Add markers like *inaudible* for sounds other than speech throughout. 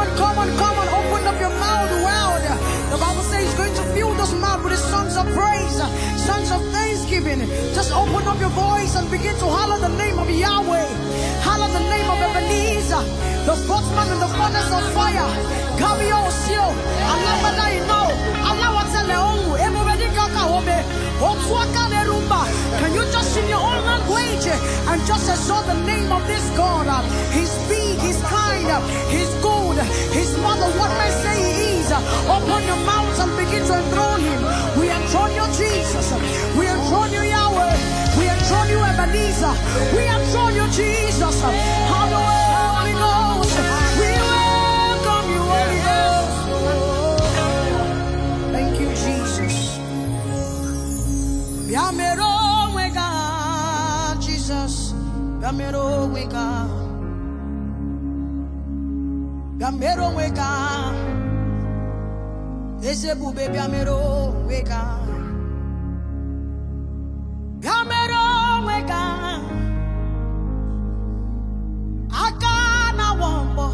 on, come on, come on. Open up your mouth wide. The Bible says he's going to fill those mouth with his songs of praise, songs of thanksgiving. Just open up your voice and begin to holler the name of Yahweh. Holler the name of Ebenezer, the spokesman in the furnace of fire. Kabio Sio, Alabadai no, Alawatele Ongu, Emubedi Kakahobe, Otsuakane Rumba. Can you just in your own language and just exalt the name of this God? He's big, he's kind, he's good. His mother, what may say he is, your mouth and begin to enthrone him. We enthrone you, Jesus. We enthrone you, Yahweh. We enthrone you, Ebenezer. We enthrone you, Jesus. bịa mere onwe ka eze ebube bịa mere onwe ka bịa mere onwe ka aka na-awọ mbọ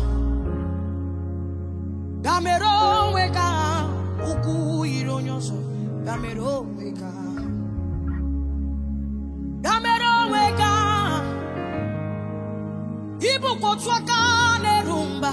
bịa mere onwe ka ukwu yiri onye ọzọ bịa mere onwe ka bịa mere onwe ka ịbụkwa otu aka na-eru mba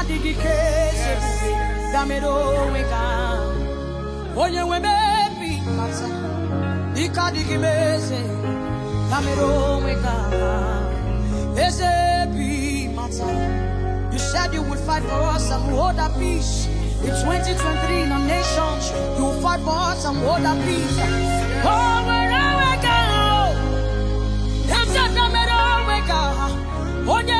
adịghị ike ezebube damere onwe gị ahụ onye nwe mebi mata ike adịghị m eze damere onwe gị ahụ eze bi mata You said you would fight for us and hold our peace. In 2023, in our nations, you will fight for us and hold our peace. Oh, nwere we go, that's a damn onwe oh, we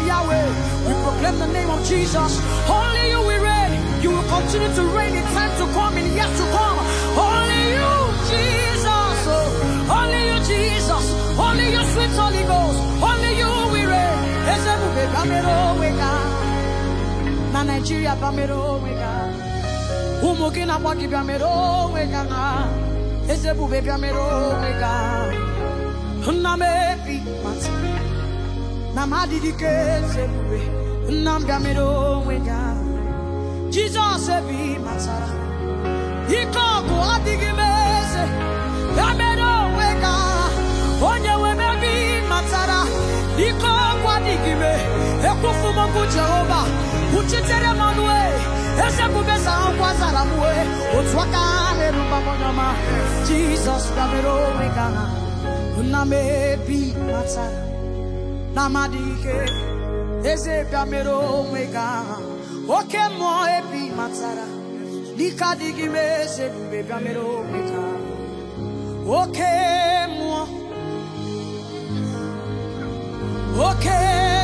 of Yahweh. We proclaim the name of Jesus. Only you we reign. You will continue to reign in time to come and yet to come. Only you, Jesus. Oh, only you, Jesus. Only you, sweet Holy Ghost. Only you we reign. Ezebube bamero wega. Na Nigeria bamero wega. Ụmụ gị na-agba gị bịamero wega na. Ezebube bịamero wega. Nna m ebi mata. na m adịghị ike ezebube nna m bịamere onwe gị ahụ jizọs ebe ị matara ike ọgụ adịghị eze ya onwe gị onye nwe m ebe ị matara ike ọgụ adịghị m ekwufu m okwu jehova kwuchitere m ọnụ e. eze bube zakwa zara m wee otu aka na-erubamonyama jizọs bịamere onwe gị ahụ nna m matara n'amadi ike eze bịa mere onwe gaa oke mmụọ ebi matara n'ike adịghị m eze ebube bịa mere onwe gaa oke mmụọ oke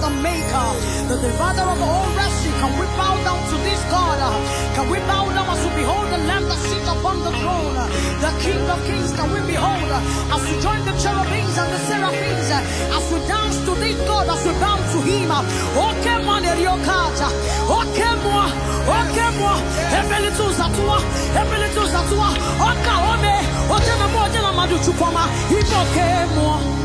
the maker, the divider of all wretched. Can we bow down to this God? Can we bow down as we behold the Lamb that sits upon the throne? The King of Kings, can we behold? As we join the cherubims and the seraphims, as we dance to this God, as we bow to Him. Okay, oh, man, Eriokata. Okay, oh, moi. Okay, oh, moi. Heavenly tools at toi. Heavenly tools at toi. Okay, ome. Okay, moi. Okay, moi. Okay, moi. Okay, moi.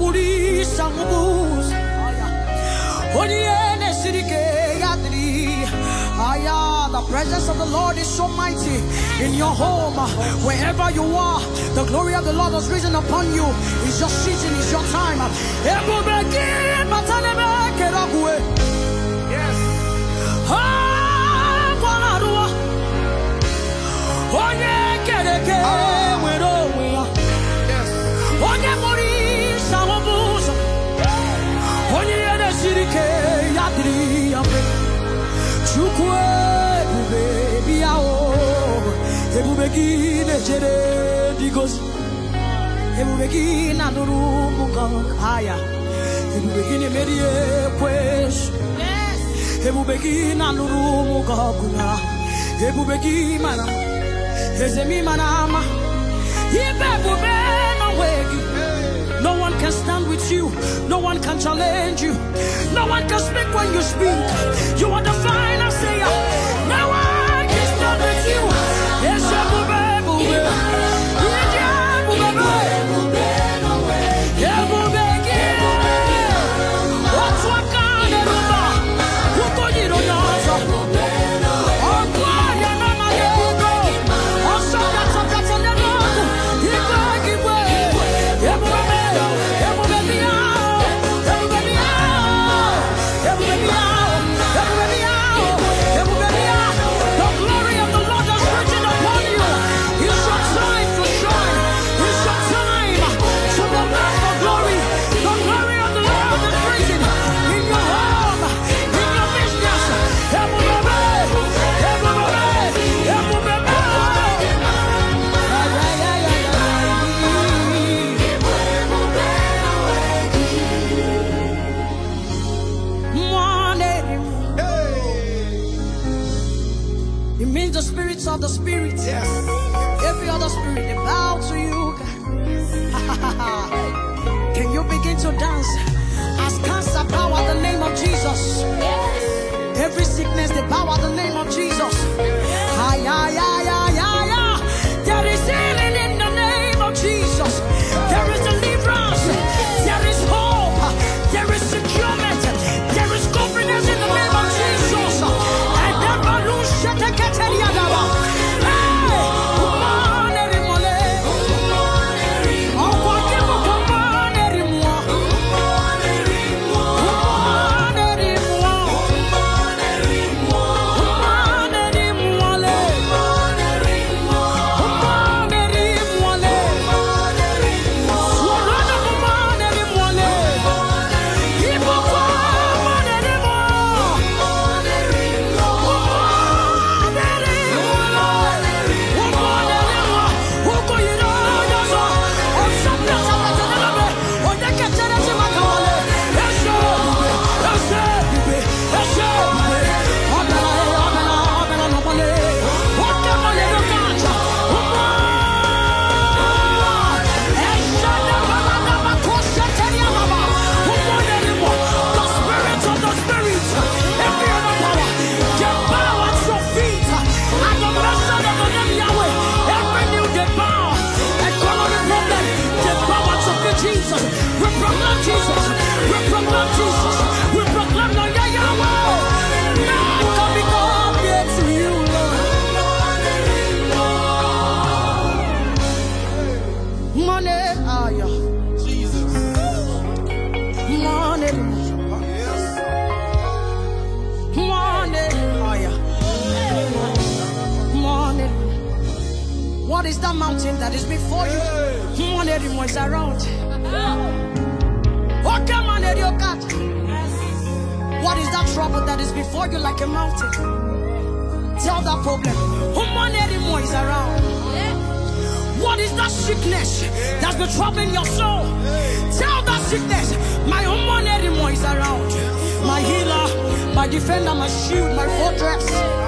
na-esiri oniene sirike yadri Aya, the presence of the Lord is so mighty in your home, wherever you are. The glory of the Lord has risen upon you. It's your season, it's your time. Yes. Oh, yeah, get it, get it. ebube gị na-echere ndị gozi ebube gị na-anụrụ ụmụ agha ebube gị na-emeri ekwesụ ebube gị na-anụrụ ụmụ ọgụ na ebube gị mara eze m ịmara ama ibe ebube n'onwe gị No one can stand with you. No one can challenge you. No one can speak when you speak. You are the final that is before you. One lady was around. Oh, come on, lady, oh, God. What is that trouble that is before you like a mountain? Tell that problem. human lady is around. What is that sickness that's been troubling your soul? Tell that sickness, my human anymore is around. My healer, my defender, my shield, my fortress.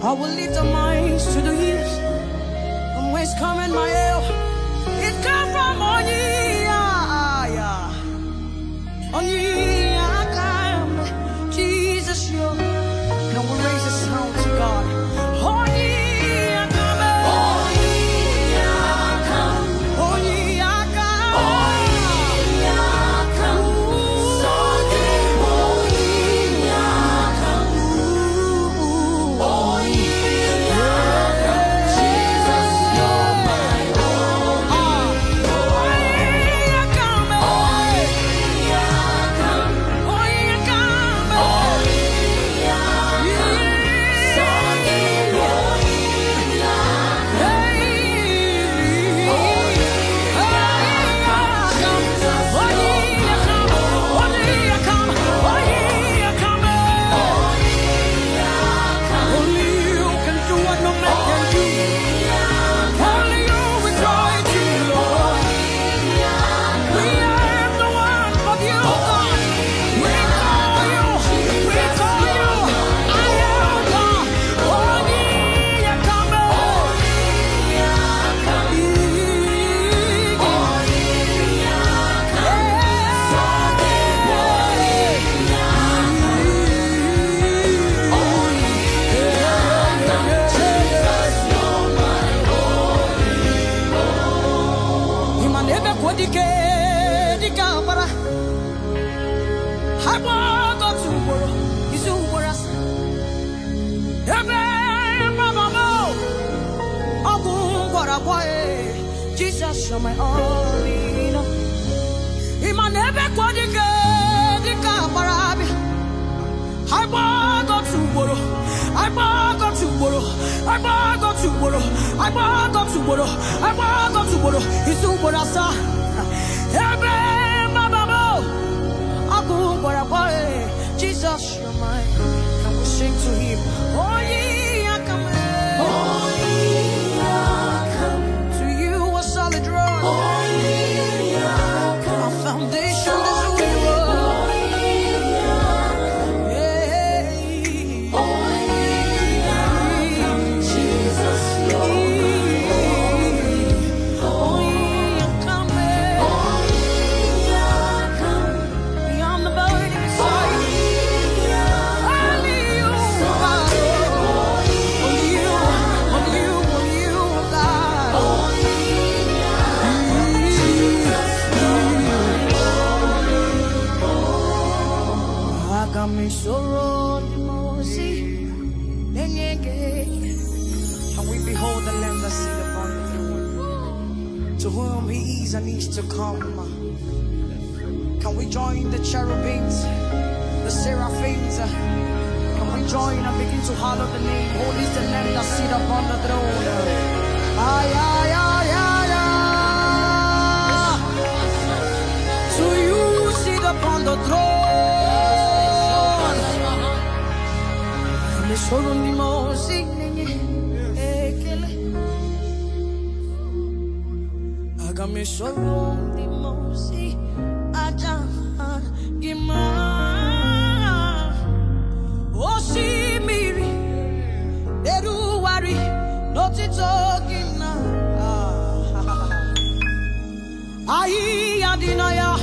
I will lift our minds to the hills from whence coming my help. It come from on ye, yeah, yeah. on ye. you're my all in all. na ebe ka ọ dị ka dị ka agbara abịa, agbagọtụ ugboro, agbagọtụ ugboro, agbagọtụ ugboro, ugboro, ugboro, asaa. Ebe i na-enye ekele aga m esorodị aosi acha gị ma ao si meri eruụhari n'ọtụtogea ahịya dị nahịa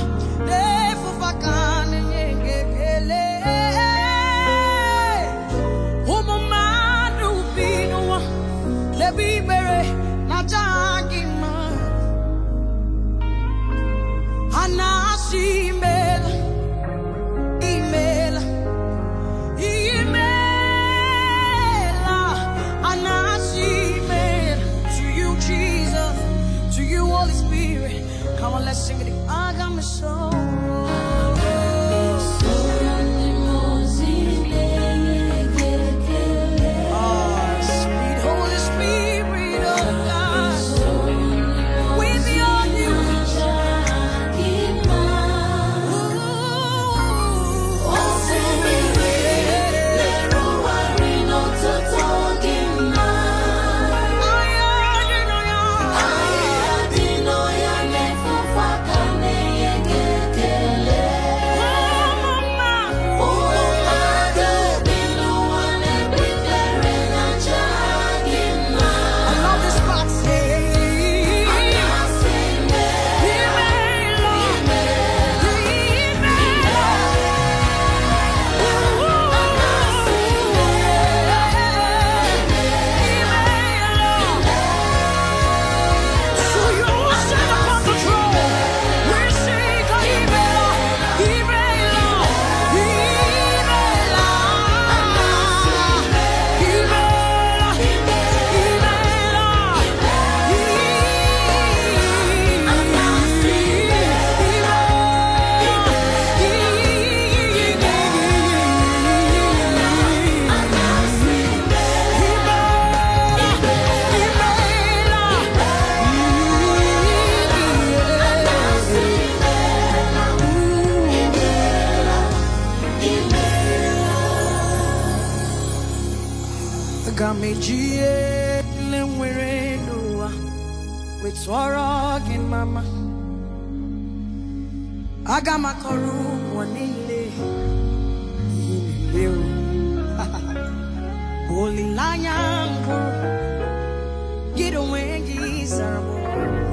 sing I got my soul. aga m akọrọ ụwa niile ihe *laughs* olileanya mbụ gị onwe gị zara m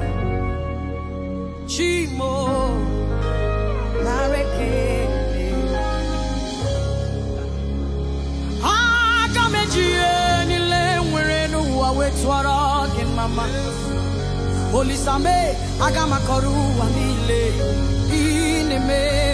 chimo nareke aga m eji ihe niile nwere n'ụwa wee tụọrọ gị mama olisame aga m akọrọ ụwa niile me